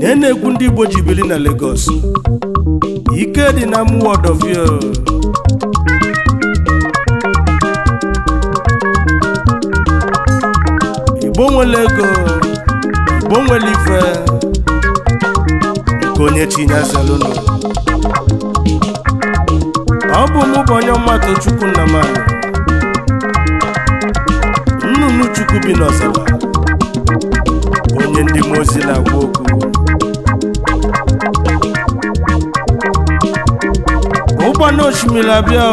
na na egwu ndị Igbo ji na Lagos ike dị na muwodovie Igbo nwere ego Igbo nwere ife nke onye chinyezerunu ọ bụ mụ bụ onye mmadụ Chukwu Nnamani nnụnụ Chukwu bi n'ọzara ndị mmụọ ozi na-agwa okwu ụgbọ n'osimiri abịa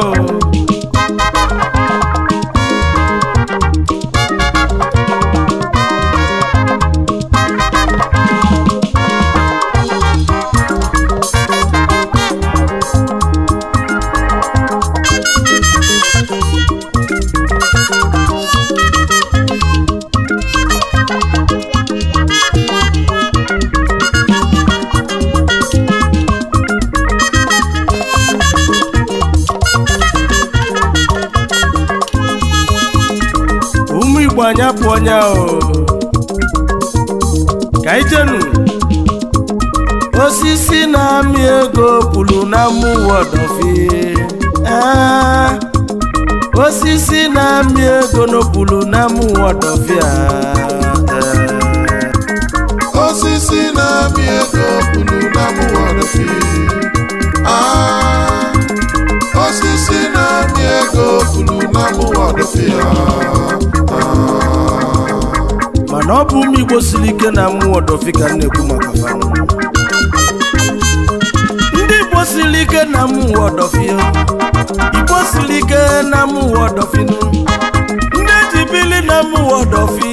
anyị apụọ nya o ka ijenu osisi na-amị ego kwuru na mmụọ ọdọfie osisi na-amị ego n'okwuru na mmụọ ọdọfie osisi na-amị ego kwuru na mmụọ ọdọfie osisi na-amị ego furu na mụwadopia mana ọ bụ ụmụ Igbo siri ike na mụwadofi ka na-ekwu maka fanwụ ndị Igbo siri ike na mụwadofi Igbo siri ike na mụwadofi ndị eji bili na mụwadofi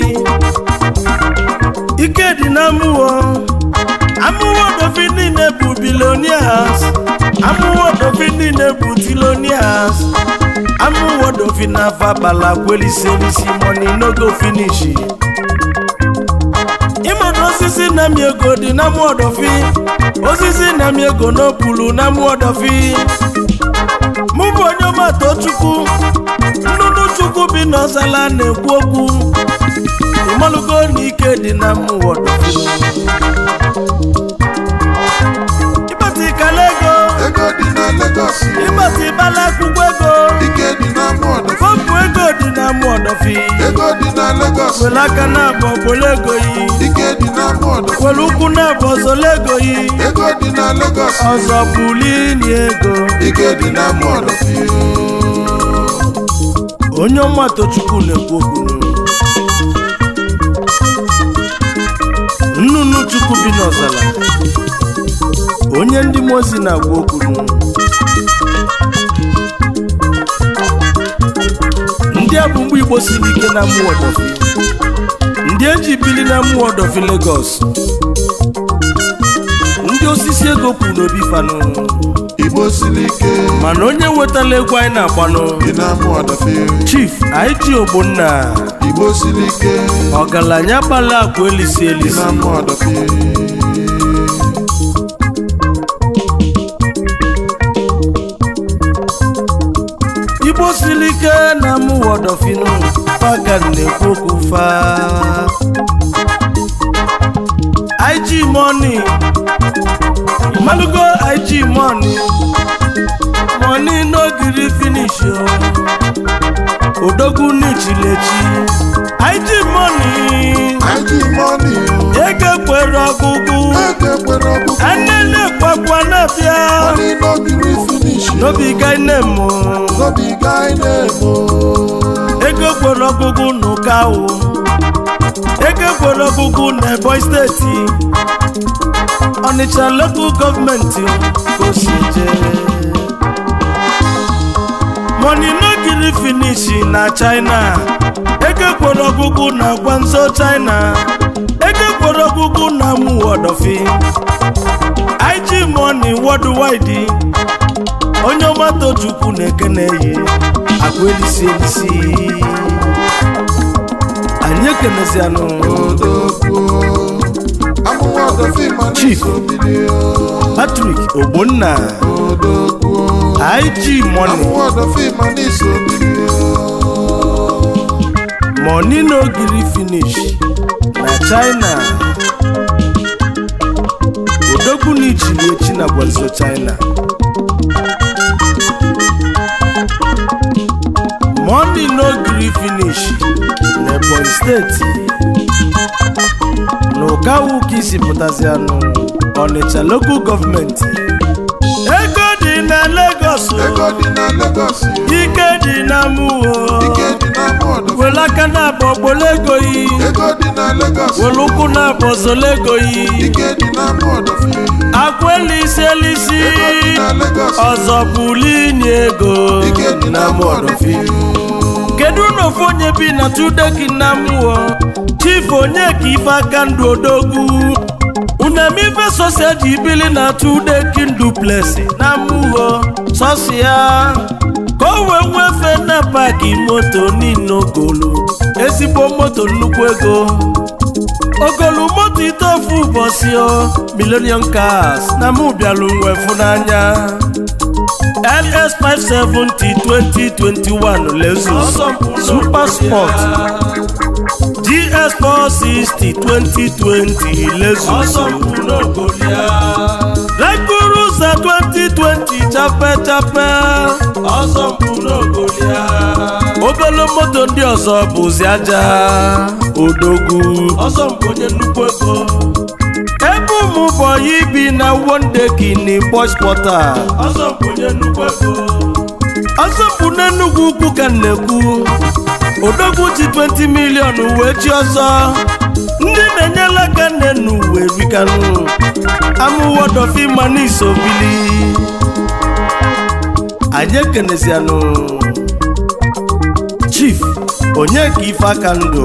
ike dị na mụwa amụwadofi niile bụ bilionia amụwodofin niile bụ tilonias amụwodofin na afa kpala kweliselisi moni n'ogo finishi ịmana osisi na-amị ego dị na mụodofin osisi na-amị ego n'opulu na mụodofin mụ bụ onye ọmata chukwu nnụnụ chukwu bi n'ọsala na-ekwu okwu ịmalụgo na dị na mụwodofin ịgbasibala akwụkwọ ego fọpụ ego dị na mọdọfi were aka na-abọ bụla ego yi were ụkwụ na-abọ zola ego yi ọzọ bụli na ego onye ọma tochukwu na-ekwu okwu nnụnụ chukwu bi n'ọzala onye ndị mmụọ ozi na-agwa okwu ndị a igbosi siri ike na mmụọ ndị eji bili na mmụọ ọdọfi Lagos ndị osisi ego kwuru n'obi fanụ ike mana onye wetala egwu anyị na-agbanụ chief ig ogbonna Igbosi ike ọgaranya gbala akwa elisi elisi word of inu pagan na okwu fa IG money malugo IG money money no gree finish o oh. odogwu n'ichilechi IG money IG money ego kwere ọgwụgwụ anene kwakwa na-abịa money no gree finish no be guy name o oh. no be guy name o oh. ego kwere ọgụgụ n'ụka o oh. ego kwere ọgụgụ n'ebonyi steeti ọnịcha lokal gọọmenti osije money no giri finish na china ego kwere ọgụgụ na gwanzo china ego kwere ọgụgụ na mụ wọdọfi ig money worldwide onye ọma chukwu na-ekene ya akụ elisi elisi anyị ekenezianụ Chief Patrick Ogbonna IG Money n'ogiri finish na China odogwu na ichiliechi na gwazo China money no gree finish n'ebonyi steeti na ụkawu ka isi pụtazi anụ ọnịcha local gọọmenti ego dị na Lagos oh. oh. ike dị na mụọ oh. were aka na-abọ gbolo ego yi were ụkwụ na-abọ zolo ego elisi ọzọ bụlini ego na mọdọfi kedu na onye bi na tudeki e na mmụọ chifu onye ka ife aka ndụ odogwu unamife sosia ji na tudeki duplesi na amụghọ sosia ka o nwefe na paki moto niile ogolu ezigbo moto nnukwu ego ogolu moto ite ofu ụbọchị o cars na mụ bịalụ n'anya ls five seventy twenty twenty one lexus super sport gs four sixty twenty twenty lexus rekurusa twenty twenty chapechape obele moto ndị ọzọ bụzi aja odogwu ọmụbọ ibi na wonde gini boys pọta ọzọpụ n'enugwu ukwu ka nnekwu odogwu ji 20 milion wee chi ọzọ ndị na-enyela aka nnenu wee bikanụ amụwodofima n'iso bili anyị ekenesianụ chief onye ka ife aka ndụ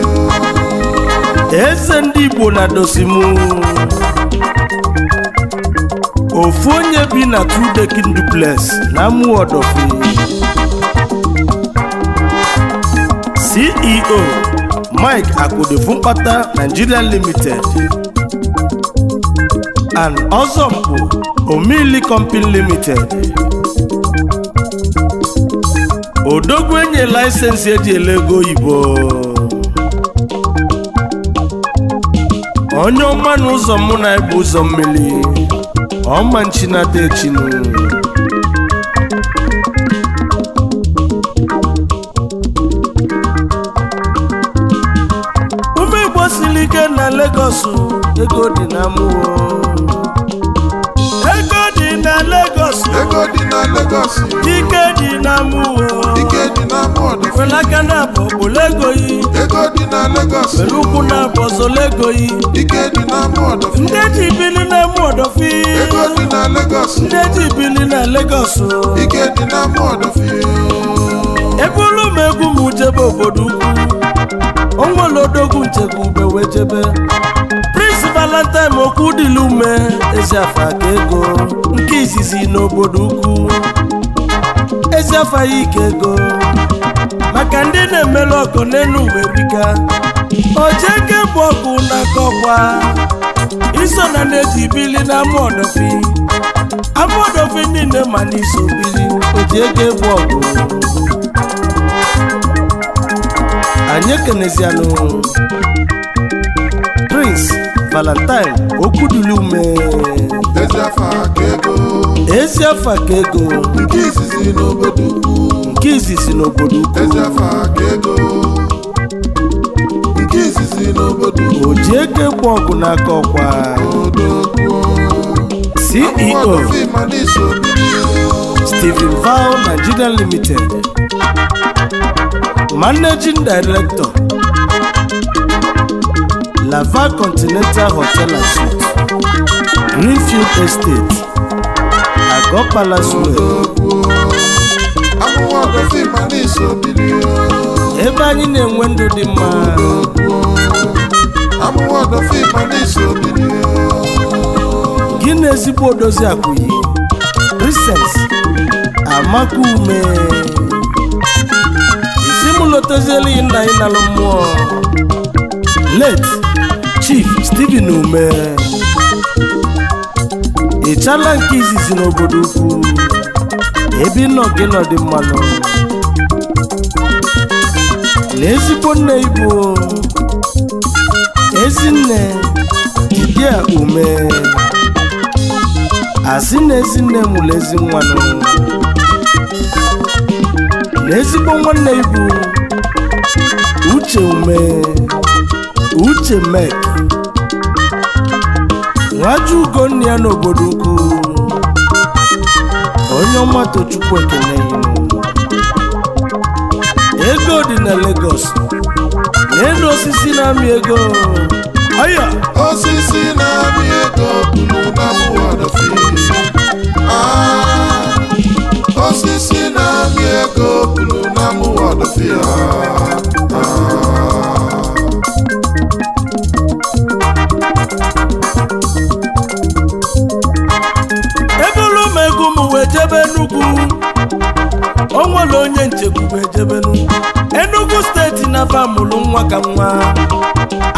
Ese ndị Igbo na dosimu ofu onye bi na two dekin duplex na Amuodofi CEO Mike Akpodefu mkpata Nigeria Limited and Ọzọmpụ Omili Company Limited odogwu enye laisensi eji ele ego oyibo onye ọma n'ụzọ ụzọ mụ na ebu ụzọ mmiri ọma nchinata echinu ume igbo siri ike na Lagos ego dị na mmụọ ego dị na Lagos ego dị na Lagos ike dị na mmụọ ike dị na mmụọ felaka na bụ obolegoyi ike dị na Lagos were ụkwụ na lego bọzolegoyi ike dị na mọdọfi ndị eji bili na mọdọfi ego dị na Lagos ndị eji bili na Lagos ike dị na mọdọfi ebe olu m egwu m jebe obodo ukwu onwere odogwu nchebe ube wee jebe Prince Valentine okwu dịla ume eziafa aka ego nke izizi n'obodo ukwu Ezi afa ike ego maka ndị na-emelu ọkụ n'elu uwe bika ojeke bụ ọkụ n'aka ọkwa iso na na-eji bili na amụọdọfi bi niile ma n'iso bili ojeke bụ ọkụ anyị ekenezianụ Prince Valentine okwuduli ume ezi afa ka ego nke izizi n'obodo ukwu nke si n'obodo ukwu o ji eke kwụ ọgụ n'aka ọkwa CEO Stephen Val Nigeria Limited Managing Director Lava Continental Hotel and Suites Greenfield Estate Agopala Square ebe anyị na-enwe ndụ dị mma gị na ezigbo odozi akụyi Princess amaka ume isi m nna anyị nalụ mmụọ let Chief steven ume ị chala nke izizi n'obodo ukwu Ebi nọgị gị mmanụ na ezigbo nne ibu ezinne dibia ume asị na ezinne mụrụ ezi nwanụ na ezigbo nwanne ibu uche ume uche mek nwaju ugo nne ya n'obodo ukwu onye ọma Tochukwu Ekene ego dị na Lagos n'elu osisi na-amị ego ọya osisi na-amị ego ah! osisi na-amị ego bulu na mụwa dọfịa onwere onye nchekwube ejebelu enugu steeti na-aba nwa ka nwa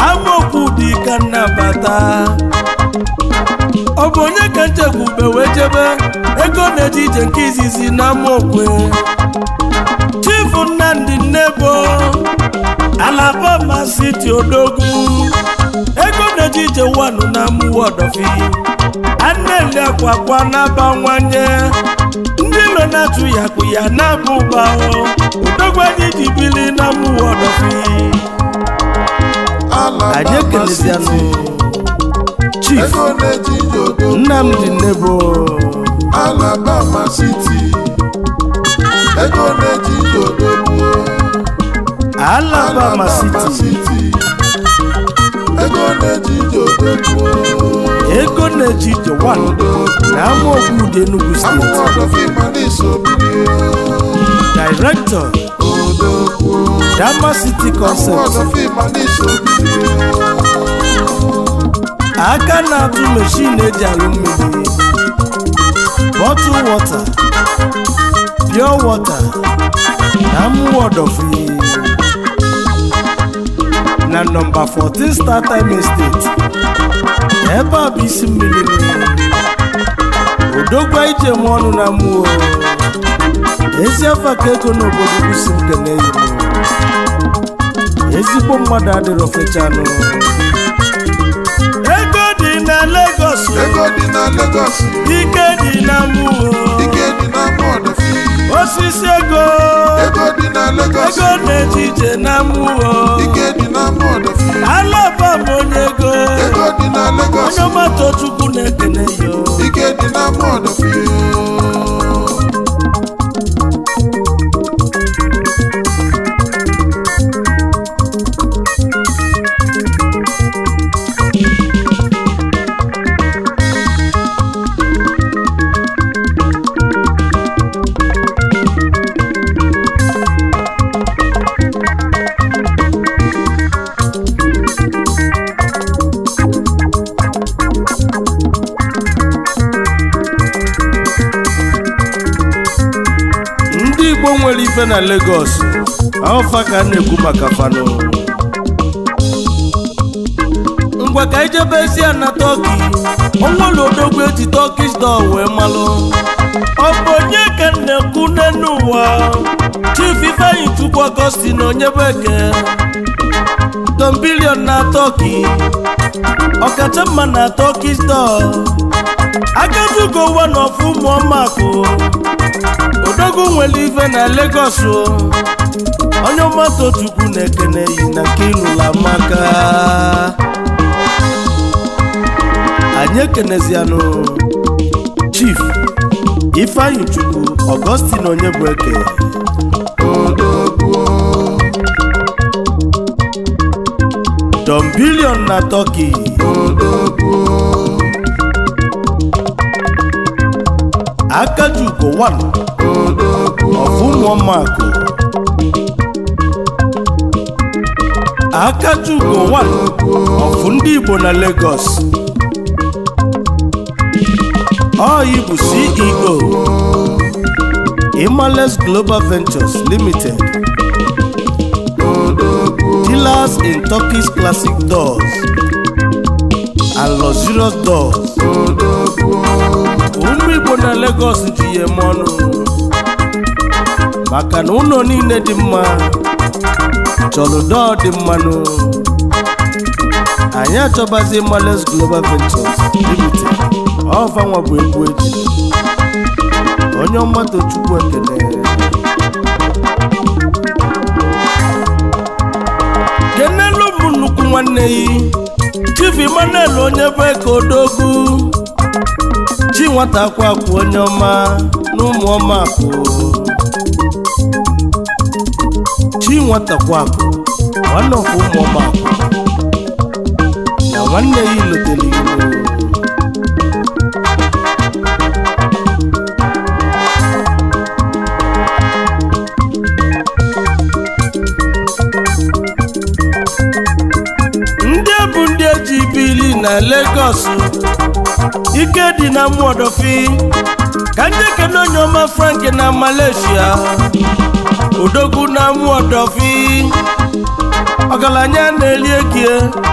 amaokwu dị ka nnabata ọ bụ onye ka nchekwube wee jebe ego na-eje ije nke izizi na amaokwe chifu nnamdị nnebo alabama siti ogumu. ego na-eje ije wanụ na mụwa ọdọfi aneli akwa kwa na-abawanye ụlọ na-atụ ya kpụ ya na-abụ ụgba odogwu anyị ji bili na mmụọ ọdọfi anyị ekelezianụ chief Nnamdi Alabama na-eji Alabama ego ego na-eji ije na amaogwude Enugu steeti Director Dapa City aka na-atụ mechin eji alụ mmiri bottle water pure water na mụwọdọfri na nọmba 14 Star Time Estate ebe ọ bụ isi mmiri ije m ọnụ na mmụọ ezi afa ka ego n'obodo kwụsi nke na ezigbo mmadụ adịrọ fechanụ ego dị na Lagos ego dị na Lagos ike dị na mmụọ ike dị na osisi ego ego dị na Lagos ego na-eji ije na mmụọ ike dị na mmụọ alaba m onye ego ego dị na Lagos onye ọmatochukwu na-ekene yo ike dị na na Lagos ọfa ka a na-ekwu maka fanụ ngwa ka ijebezi a na tọki ọnwala odogwu eji tọkish dọ wee malụ ọ bụ onye ka na-ekwu n'elu ụwa Chief Ifeanyi Chukwu Augustine na onye bụ eke tombilion na tọki ọkacha mma na tọkish dọ agazi ugo ụwa na ọfụ odogwu nwere ife na Lagos o onye mmadụ na-ekene yi na nke ịlụla maka anyị ekenezianụ chief ifeanyi chukwu Augustine onye bụ eke don bilion na Turkey akajugowanu ọ̀fúnmọ́màkù. Akajugo wà ọ̀fún ndị Igbo na Lagos. Oyi bụ CEO Imales Global Ventures Limited. Dealers in Turkish Classic Doors and Luxurious Doors. Ụmụ Igbo na Lagos ji ya eme ọnụ. maka na ụlọ niile dị mma chọrọ dọọ dị mmanụ anyị achọbazi males global ventures limited nwa bụ egwu eji onye ọmatụ chukwu ekele kenelu bụ nnukwu nwanne yi chief Emmanuel onye bụ eke odogwu chi nwata akwa onye ọma na ụmụ ọma akụ dị nwatakwa akụ nwanne ọfụ ụmụọma akụ ndị nwanne ya eji bili na Lagos ike dị na mụọdọfi ka ndị kene onye ọma Frank na Malaysia odogwu na-amụ ọdọfi ọgaranya na-eri ekie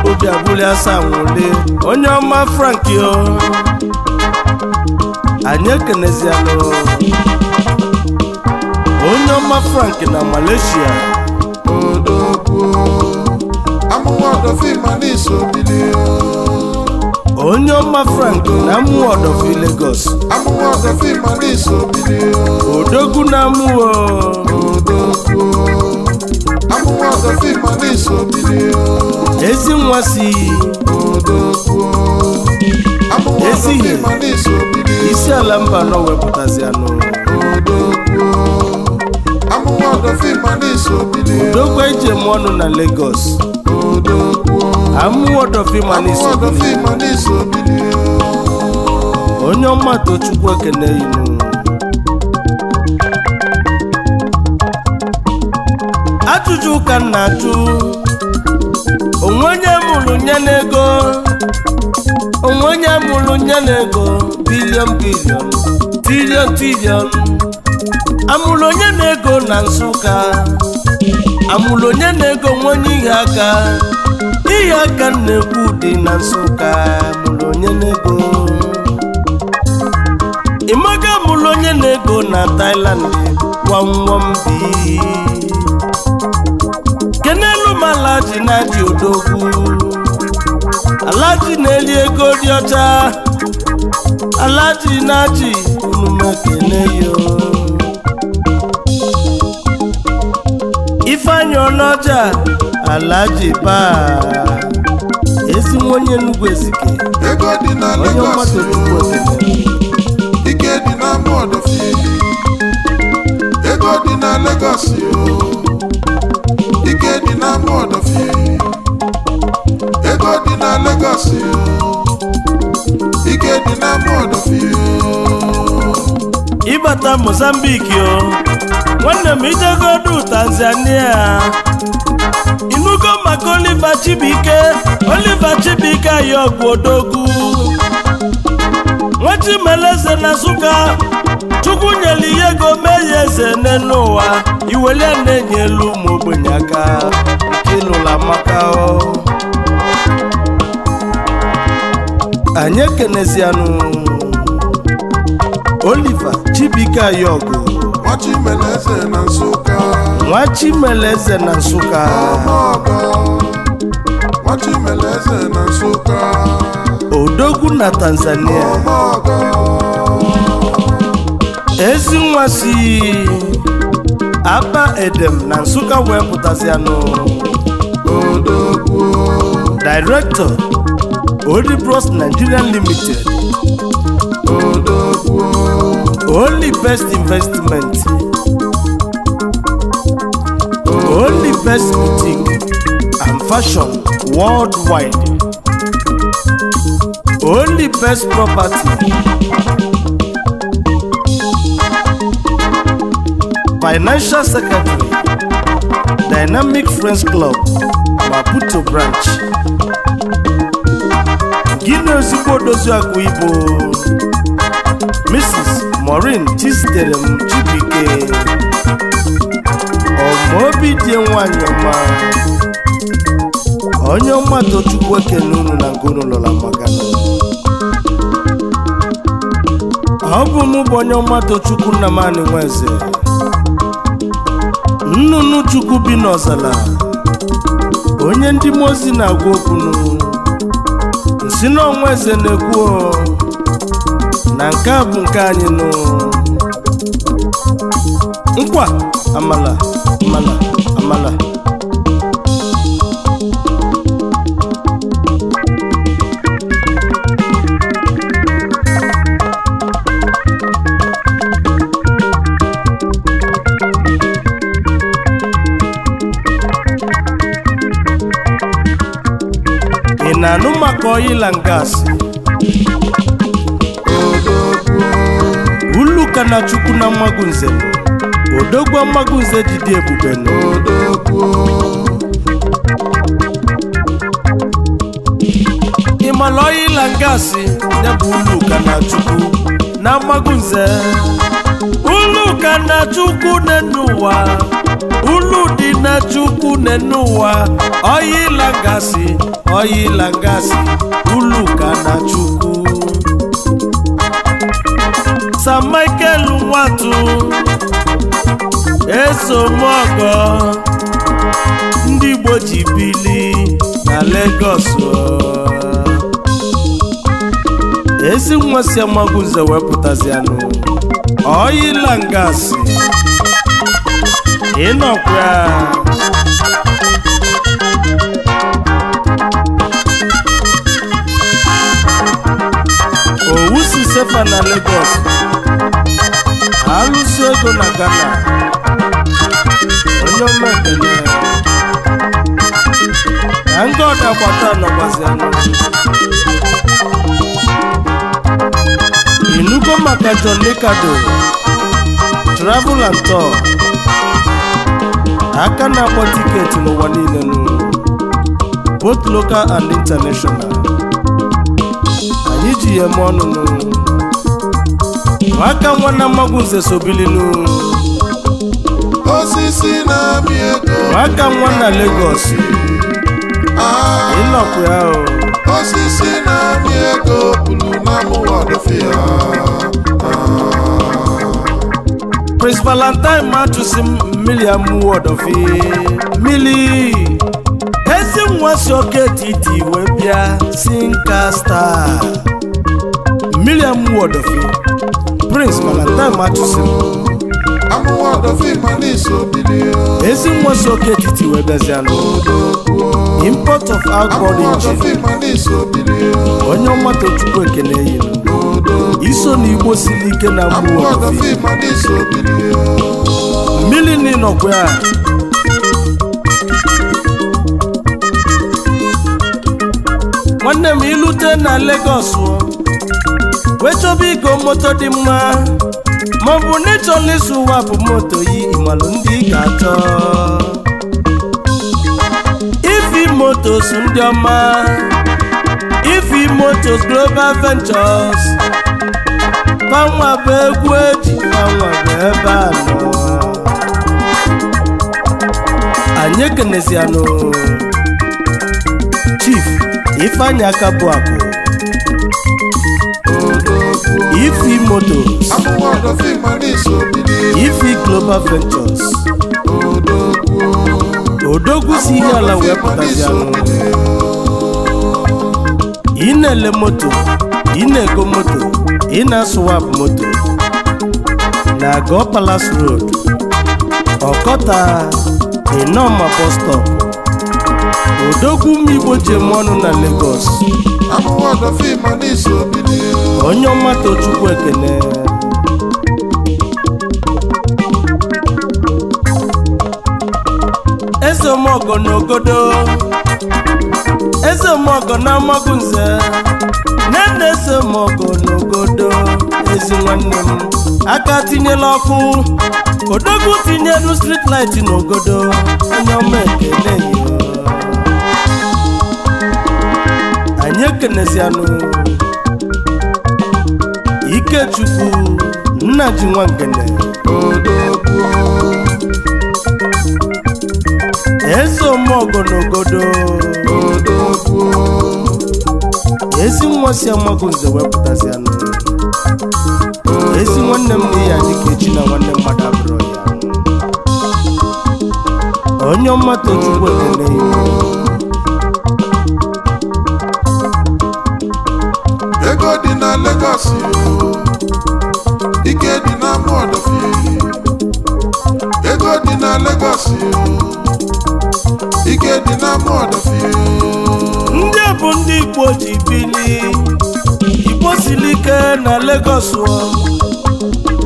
obi abụli asaa nwụle onye ọma franki o anyị ekenezianụ onye ọma Frank na malaysia odogwu amụwa ọdọfi ma n'iso onye ọma frank na-amụ ọdọfi Lagos odogwu na-amụ ezi nwa si ezighi isi ala mba nọ wepụtazi anụ udokwa ije m ọnụ na Lagos amụwọdọfimanisobili onye ọma tochukwu ekene inu ajụjụ ka m na-ajụ onwe onye mụrụ nye n'ego onwe onye mụrụ nye n'ego bilion bilion bilion trilion amụrụ onye na-ego na Nsụka amụrụ onye na-ego nwe onye ihe aka ihe aka na-ekwu dị na Nsụka mụrụ onye na-ego ịmaga amụrụ onye na taịland na Thailand gwamgwam kenelu ala ji na dị odogwu alaji na-eri ego dị ọcha alaji na-achị onume kene yo ifeanyị ọnọja alaji ji paa, nwa onye nnukwu ezike onye mmadụ nnukwu ike dị na fiili. ego dị na Lagos yo ike dị n'ama ọdọfie ego dị na Lagos ike dị n'ama ọdọfie ịbata Mozambique o nwanne m ijegodu Tanzania inugo maka Oliver Chibuike Oliver Chibuike ayọgwụ odogwu nwachimeleze na Nsụka Chukwu nyere ihe ego mee ya eze n'elu ụwa iwele na elu ụmụ ogbenye aka ịlụla maka anyị ekenezianụ oliva Chibuike Ayọgụ nwa Chimeleze na Nsụka odogwu na Tanzania ezi nwa Abba Edem na Nsukka wepụtasị anụ Odogwu Director Odibros Nigerian Limited Only Best Investment Only Best Boutique and Fashion Worldwide Only Best Property Financial Secretary, Dynamic Friends Club, Maputo Branch. Gịnị ozugbo akụ ibu? Mrs. Maureen Chizitere m Chibike, Ọmaobi dị nwanyị ma? onye ọma Tochukwu unu na ngụnụlọla magana ọ bụ mụ bụ onye ọma Tochukwu Nnamani Nwaeze. nnụnụ chukwu bi n'ọzala onye ndị mmụọ ozi na-agwa okwunu nsi n'ọnwa eze na-ekwu na nke a bụ nke anyị nụ nkwa amala amala amala na-anụ maka oil and gas uluka na chukwu na mmagunze odogwu mmagunze didi ebube ịmala oil and gas ya bụ uluka na chukwu na mmagunze uluka na chukwu n'ụwa ulu dị na chukwu n'ụwa oil and oyila ngasị uluka na chukwu San Michael nwatu esomọgọ ndị Igbo ji bili na Lagos ezi nwa si amagụ nze wepụtazianụ oyila ngasị ịnọkwa gọvanọ na Lagos alụsi ego na Ghana onye omekele na ndị ọdagbata nọgbazi anọ inugo maka John Licado travel and tour aka na-akpọ tiketi n'ụwa niile both local and international anyị ji ya eme ọnụ n'ụlọ aka nwanna mmagwu nze sobililu osisi na-amị ego aka nwanna Lagos ịnọkwu ah. ya o osisi na-amị ego bụrụ na mụwa ọdụfịa ah. Prince Valentine ma chụsi mmiri of ọdọfi mmiri ezi nwa si oke titi wee bịa si nka star mmiri amụwa prince mana nna m achụsiri ezi nwa si oke etiti wee import of alcohol engine onye ọma tochukwu ekene yiri iso na igbo siri ike na mgbu mmiri n'ịnọkwa ya nwanne m ilute na Lagos wetobi chọba moto dị mma maọbụ n'ịchọ ịchọla ụwa bụ moto yi ịmalụ ndị ga atọ. ifi motos ndị ọma ifi motos global ventures panwa bụ egwu eji panwa bụ ebe a nọ anyị ekenezianụ chief ifeanyị aka bụ akụ Ifi Motors Ifi Global Ventures Odogwu si ihe ala wee pụtazi anụ ị na-ele moto ị na-ego moto ị na moto na Go Palace Road Ọkọta Inoma bus stop Odogwu Mmigbo ji ọnụ na Lagos onye ọma tochukwu ekele eze omeọgọ na ogodo eze na amagụ nze nne eze omeọgọ na ogodo ezi nwanne m aka tinyela ọkụ odogwu tinyelu strit light n'ogodo onye ọma ekele anyị ekenezianụ Ikechukwu nna ji nwa ngene eze omeogo n'ogodo ezi nwa si amago nze wepụtazianụ ezi nwanne m dị ya dịka echi na nwanne mmadụ abụrụ ya onye ọma tochukwu ekene Lagos ike dị na fie ego dị na Lagos ike dị na Amọdọfịa ndị bụ ndị Igbo ji bili Igbo siri ike na Lagos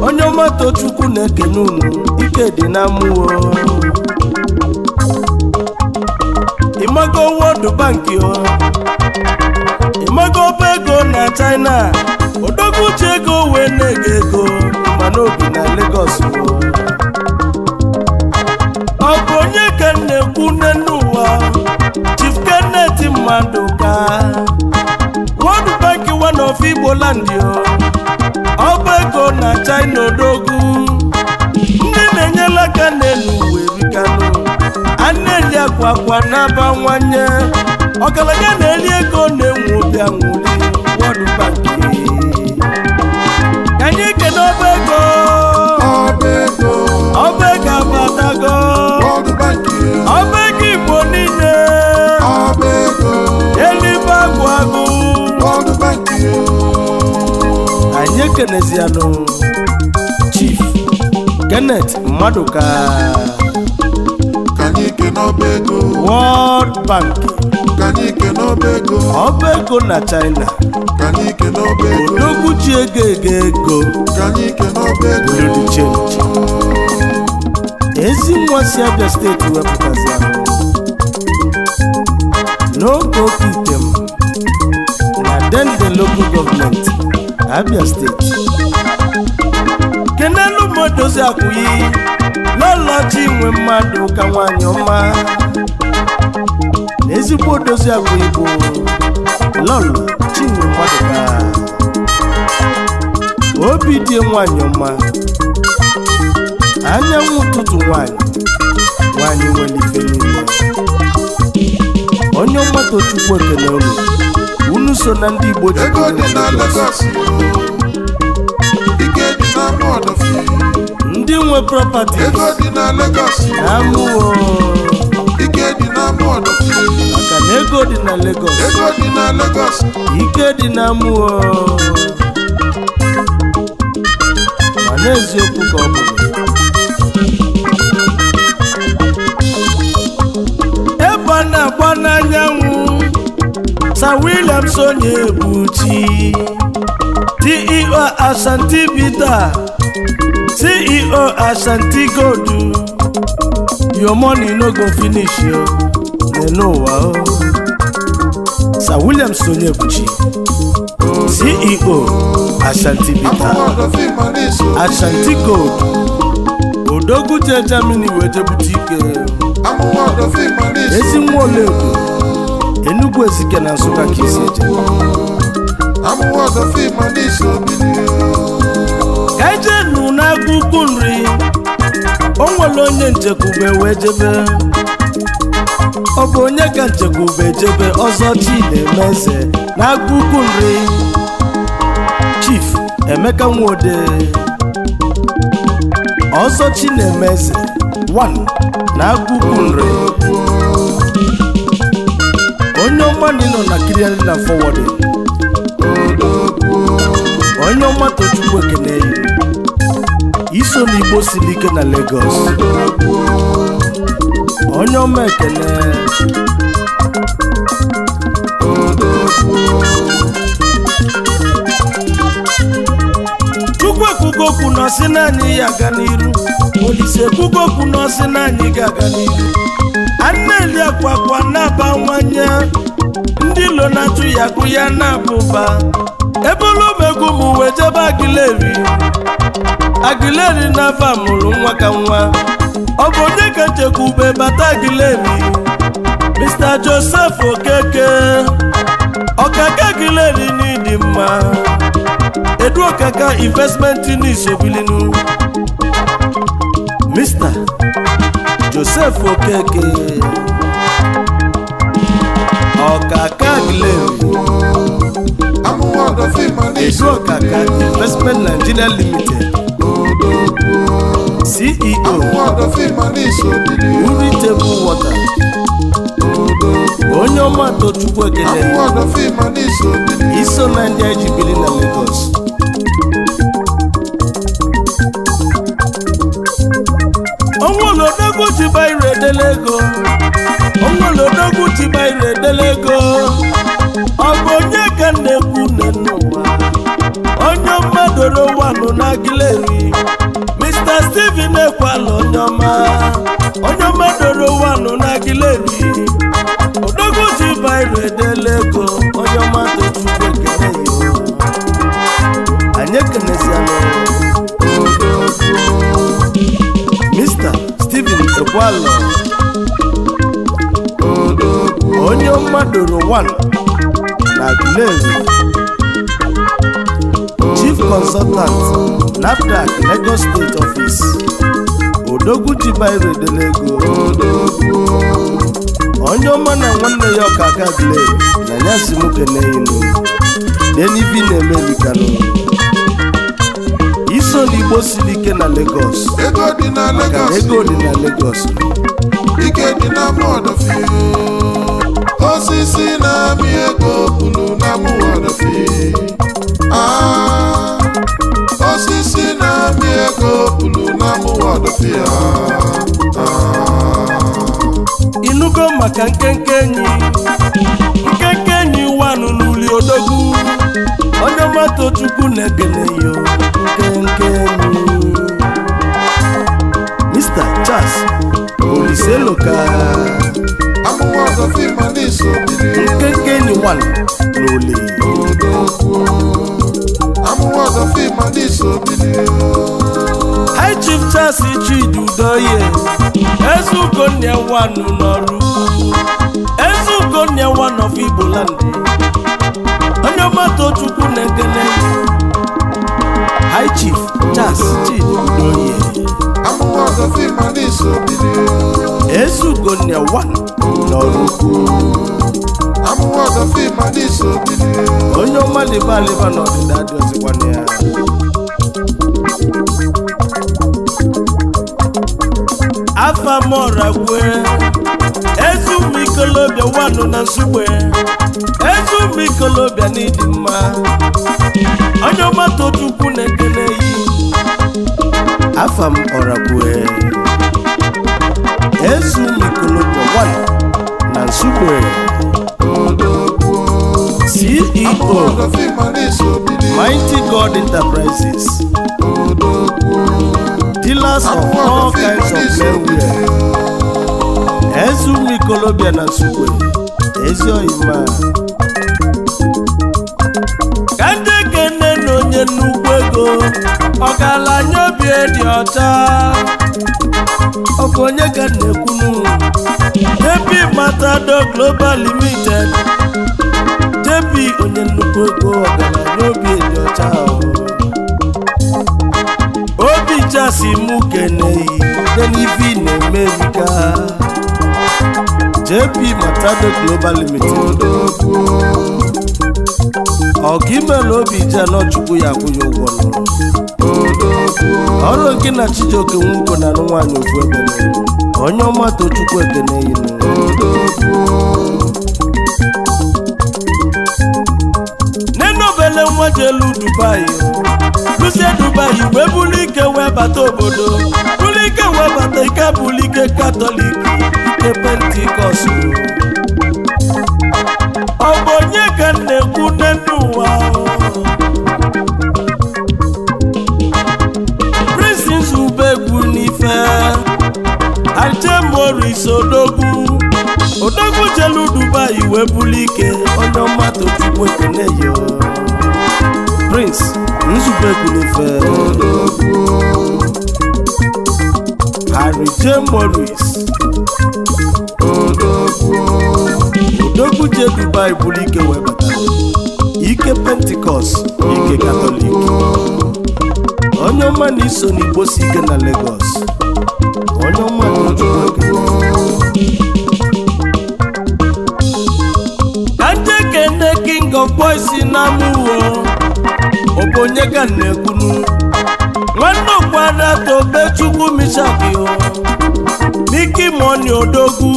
onye ọmato Chukwu na-ekene unu ike dị na mmụọ ịmago wodu banki Amago Pego na China Odogu Chego Wene Gego Manobi na Lagos Akonye Kene Kune Nua Chief Kennedy Manduka One Bank One of Ibo Landio Abego na China Odogu Nene Nyela Kene Nuwe Vikano Anelia Kwa Kwa Naba Wanye Kwa Kwa Naba Wanye ọgaranya na-eri ego na-enwe obi anwụli wọdụ banki anyị kene ọba ego ọba ego abatago ọba ego igbo niile elibe agwụ agụ anyị ekenezianụ chief kenneth maduka World Bank n'obego ọba ego na China kanike n'obego odogwuchi ego ego ego kanike n'obego lodi chenji ezi nwa si Abia steeti wepụtazi ahụ n'oge oke item na dende local gọọmenti Abia steeti kenelu modozi akwụghị ji nwe mmadụ ka nwaanyị ọma na ezigbo odozi agwa igbo lọlọ chinwe mmadụka obi dị nwanyị ọma anyanwụ ụtụtụ nwanyị nwanyị nwere ife niile onye ọgbata chukwu ekele unu unu so na ndị igbo ji ndị nwe propati na amụọ ego dị na Lagos ego na Lagos ike dị na mmụọ mana eziokwu ka ọ bụ ebe a na-agba n'anyanwụ Sir William Sonye Ebuchi CEO Ashanti Bita CEO Ashanti Gold your money no go finish yo n'ụwa o Sir William Sonyebuchi CEO Ashanti Bita Ashanti Gold Odogwu Germany wee jebute ike ezi Enugu Ezike na Nsụka ka isi ka ijenu n'aka nri o onye njekwube wee jebe ọ bụ onye ka nchekwube ejebe ọzọ chi na eze na ukwu nri chief emeka nwode ọzọ chi na eze 1 na ukwu nri onye ọma na na kiriari na fọwọdụ onye ọma tochukwu ekene iso n'igbo siri ike na Lagos onye ọma ekele chukwu ekwugo okwu n'ọsị naanị ya aga n'iru olise ekwugo okwu n'ọsị naanị ga-aga n'iru ana-eli akwa akwa na-abawanye ndị lo na-atụ ya agụ ya na-abụba ebe olumegwu m wee jebe agileri agileri na-aba mụrụ nwa ka nwa ọmọ oníkẹjẹkùbẹ bàtà ìdílé mi Mr Joseph Okeke ọ̀gá kẹ́gìlẹ̀ ni ní ìdìmọ̀ edu ọ̀kàkà investment ní ìṣòbílínú Mr Joseph Okeke ọ̀gá kẹ́gìlẹ̀ mi edu ọ̀kàkà investment Nigeria limited. CEO Uritebu Water onye ọma Tochukwu Ekene iso na ndị ji na Lagos onwere odogwu jiba ire edele ego onwere onye ka na-ekwu na onye mmadụ na agileri ọdọma onye mmadụrụ wanụ n'akịlebi odogozi bairu edela ego onye mmadụ chukwu ekele ya anyị ekeneziala Mr. Stephen Ekwalo onye mmadụrụ wanụ na akịlebi Chief Consultant, NAFDAC, Lagos State Office. Dogwu Chibahiro dele ego onye ọma na nwanne ya ọka aka gile na ya si m keneyinu denibi na-emelikanụ iso n'igbo siri ike na Lagos ego dị na Lagos ego dị na Lagos ike dị na mọdụ osisi na-amị ego bulu maka nkenke enyi nkenke enyi wa n'uli odogwu onye mato chukwu na-ekele nke nkenke enyi Mr. Charles Oliseloka nkenke enyi wanụ n'uli High Chief Charles Chidudoye Ezugonye nwanụ n'ọrụ Ezugonye of Igbo land onye ọmata Chukwu na-ekene High Chief Charles Chidoye Ezugonye nwanụ n'ọrụ onye ọma liba dị ya Ezu ezumuikolobịa wanụ na nsugbe ezumuikolobịa n'ịdị mma onye ọmata chukwu na-ekene yi afam Ezu ezumuikolobịa wanụ na nsugbe CEO Mighty God Enterprises colors of all kinds of men wear. Ezumi Kolobia na Sukwe, Ezio Ima. Kande kene na onye nnukwu ego, ọgaranya obi dị ọcha. Ọkụ onye ka na-ekwunu, Depi Matado Global Limited, JP, onye nnukwu ego ọgaranya obi dị ọcha ahụ. ọcha si mụ keneyi denivi na America JP Matado Global Limited ọkaimela obi ji chukwu ya akwụghị ụgwọ nụrụ ọrụ nke na Chijioke Nwuko na alụ nwaanyị ofu ebe onye ọma Tochukwu ekeneyi nụ ele nwa jelu dubai luzie dubai We bulu ike wee bata obodo bulu ke wee bata ike ke ike katọlik ike pentikọst ọ bụ onye ka m na-ekwu nne nne ụwa prisins ubegwu n'ife ajemoris odogwu odogwu jelu dubai wee bulu ike onye ọma tochukwu ekeneyo prince nzube kwulife Harry J. Morris odogwu je Dubai bụrụ ike wee batara ike pentikọst ike katọlik onye ọma na iso n'igbo si ike na Lagos onye ọma na kanje kende king of boys na mụwo bụ onye ka na-ekwunu nwanne okpuada Chukwu mishakio miki moni odogwu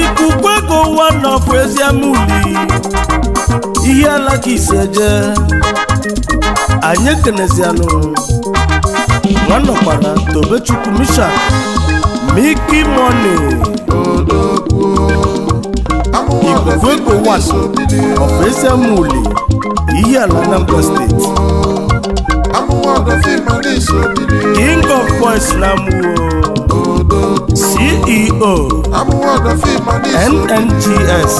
ikuku ego ụwa nọfụ eziamuli ihe alaka ise je anyị ekenezianụ nwanọkwara tobechukwu mishak miki moni ikuku ego ụwa nọfụ eziamuli iyi ala Anambra steeti king of boys lamuwo ceo nngs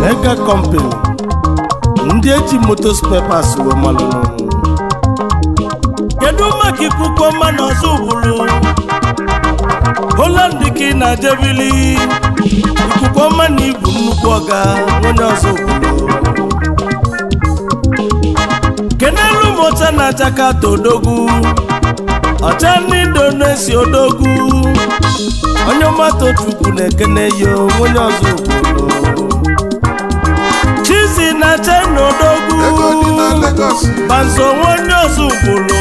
mega company ndị eji motos pepas wee malụrụ kedu maka ikuku ọma na ọzọ ugburu Holland ka ị na-ajebili ikuku ọma ibu nnukwu ọga onye ọzọ ugburu kenelu m ọcha na jakata odogwu ọcha ndị esi odogwu onye ọmata chukwu na-ekene ya onye ọzọ chizi na chena odogwu panso onye ọzọ ugboro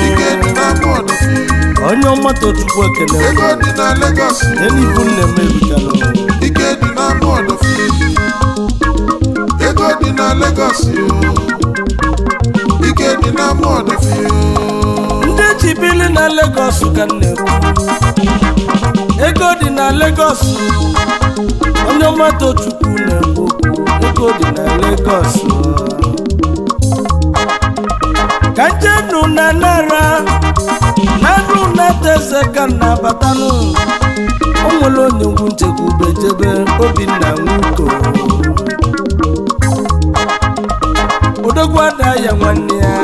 onye ọmata chukwu ekene enibu nne m erutela ego dị na Lagos ike dị n'ama ndị ji na Lagos ga ego dị na Lagos onye ọmata chukwu na-ekwu ego dị na Lagos ka njenu na nara narụ na teze ga na-abatanụ nwere onye ngwu nchekwa Obinna Nwuko odogwu ya nwanne ya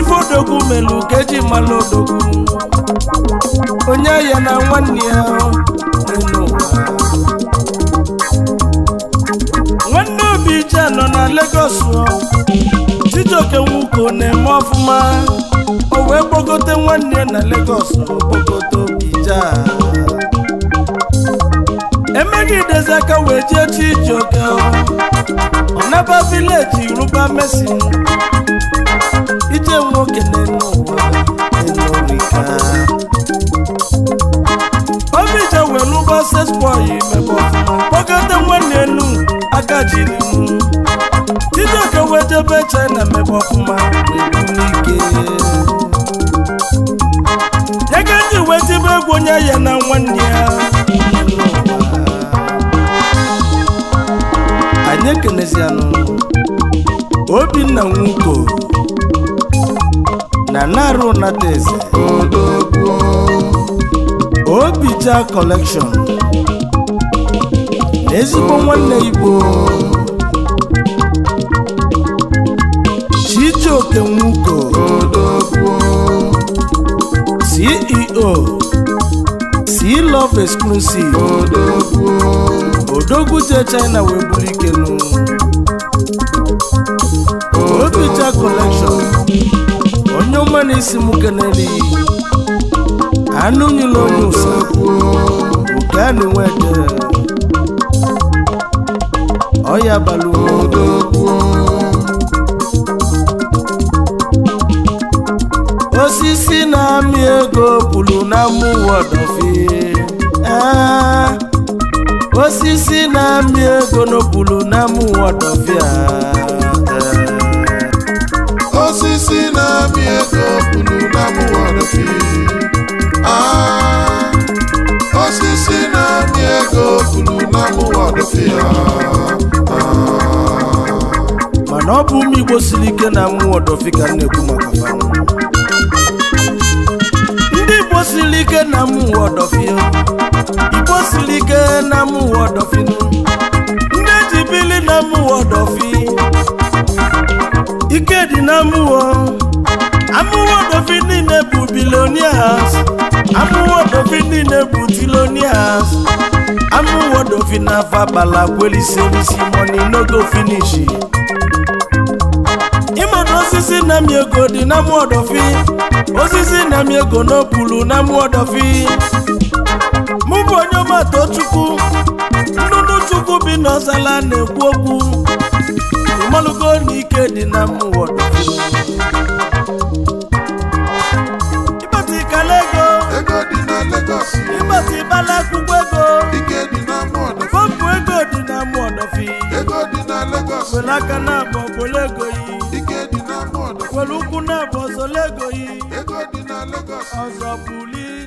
ife odogwu melu ka eji mmanụ odogwu onye ya na nwanne ya nwanne obi ije nọ na Lagos Chijioke Nwuko na-eme ọfụma o wee gbogote nwanne ya na Lagos kpogote obi emeghị idezi aka wee jee Chijioke Onaba village Yoruba Mercy ije nwoke n'elu ụwa enorika Obija welu bases boy mebe ọfụma kpọgata nwanne enu aka jiri mụ Chijioke wejebe China mebe ọfụma n'ike Nyega ji wejebe egwu onye ya na nwanne ya anyị ekelezianụ obinna nwuko na narụ nata obija kọlekshọn na ezigbo nwanne igbo chijioke nwuko ceo c love exclusive odogwu si China wee buru oyo obicha collection onye ọma na isi m keneli anụ nyere onye usekwu oke a na-enwe ede ọya balụ osisi na-amị ego kwuru na mụwa ọdọfie ee ah. osisi na-amị ego n'okpuru n'ama ụwa dọfịa osisi na-amị ego okpuru n'ama ụwa dọfịa osisi na-amị ego okpuru n'ama ụwa dọfịa mana ọ bụ ụmụ Igbo siri ike na mmụọ dọfịa ka m na-ekwu maka siri ike na mụ ụwa ọdọfịa igbo siri ike na mụ ụwa ọdọfịa ndị eji bili na mụ ụwa ọdọfịa ike dị na mụ ụwa amụwa ọdọfịa niile bụ bilonias amụwa ọdọfịa niile bụ tilonias amụwa ọdọfịa na fabala kwelisi money no go finishi ịmata osisi na mi ego dị na mụ ọdọfịa osisi na m ego n'opulu na mmụọ dọfi mụ bụ onye ọmata chukwu nnụnụ chukwu bi n'ọzala na-ekwu okwu ịmalụgo na dị na mmụọ dọfi ego ịbata ịbala akwụkwọ ego fọmpụ ego dị na mmụọ dọfi were aka na-abọ As a azabuli